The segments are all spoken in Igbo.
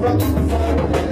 From the fire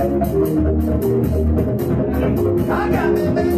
I got me, baby.